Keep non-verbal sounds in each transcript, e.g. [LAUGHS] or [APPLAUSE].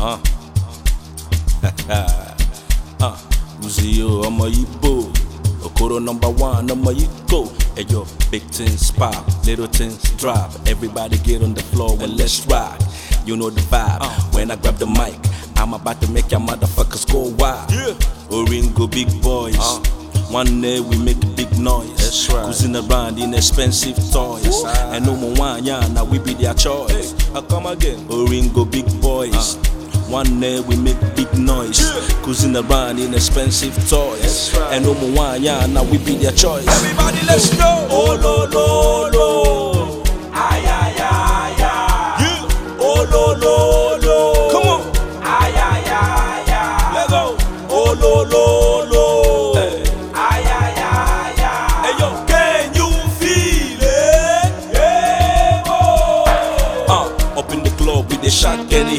Uh. [LAUGHS] I'm a Igbo. Okoro number one, I'm a Igbo. Hey yo, big things pop, little things drop. Everybody get on the floor and let's rock. You know the vibe. Uh. When I grab the mic, I'm about to make your motherfuckers go wild. Oringo, big boys. Uh. One day big noise. That's right. Cruising expensive toys. Ooh. And no more choice. Oringo, big boys. One day we make big noise. Yeah. Cruising around in expensive toys. And Omo Wanya, now we be their choice. Everybody, let's go. Oh, no, no, no. Ay, ay, ay,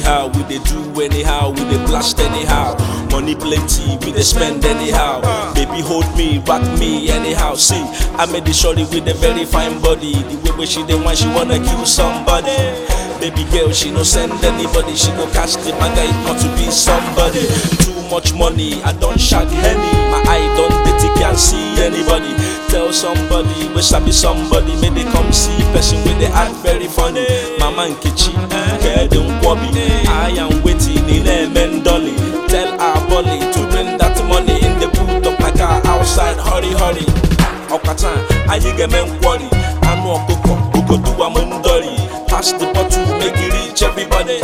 anyhow. We they do anyhow, we they blast anyhow. Money plenty, we they spend anyhow. Baby hold me, rock me anyhow. See, I made the shorty with a very fine body. The way where she dey one she wanna kill somebody. Baby girl, she no send anybody. She go catch the manga, it not to be somebody. Too much money, I don't shag any My eye don't dirty, can't see anybody. Tell somebody, wish I be somebody. May they come see person with the act very funny. mama nkechi kedu nkwobi I am waiting in eme dolly tell her bully to bring that money in the put up like outside hurry hurry ọkacha anyị ga-eme nkwori anụ ọkụkọ ogodo m ndọri pass the bottle make you reach everybody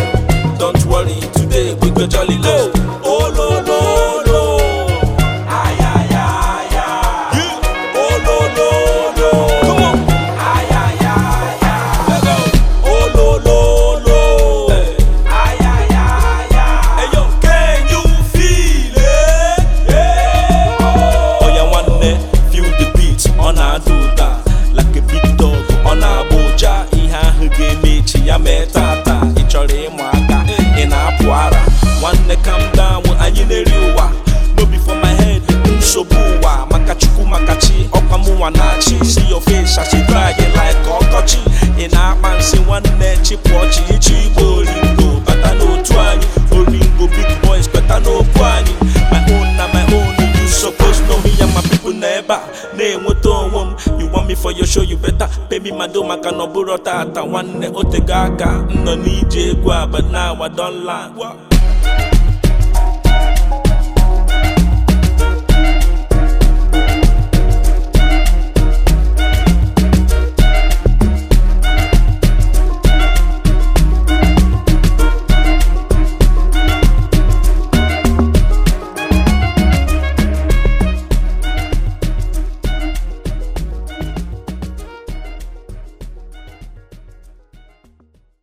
don't worry today we go jolly low mee tata ị chọrọ ịmụ aka ị na-apụ ara nwanne calm down anyị na-eri ụwa no be for my head nsogbu ụwa maka chukwu maka chi ọkwa mụnwa na-achị si your face asị dry like ọkọchị ị na-akpa nsị nwanne chịpụ chi ichi igbo oringo bata n'otu anyị oringo big boys bata n'okwu anyị my own na my own you suppose know me ya ma people na ebe a na-enweta onwe m me for your show you better baby madom maka na ọbụrụ tata nwanne eh, otego oh, aka m nọ n'ije egwu aba na awa don land